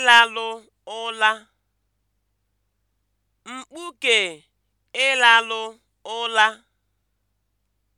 ịlalụ ụla mkpuke ịlalụ ụla